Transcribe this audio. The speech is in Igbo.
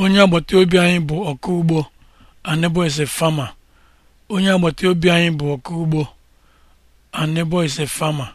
onye agbata obi anyị bụ ọkụ ugbo anebo fama.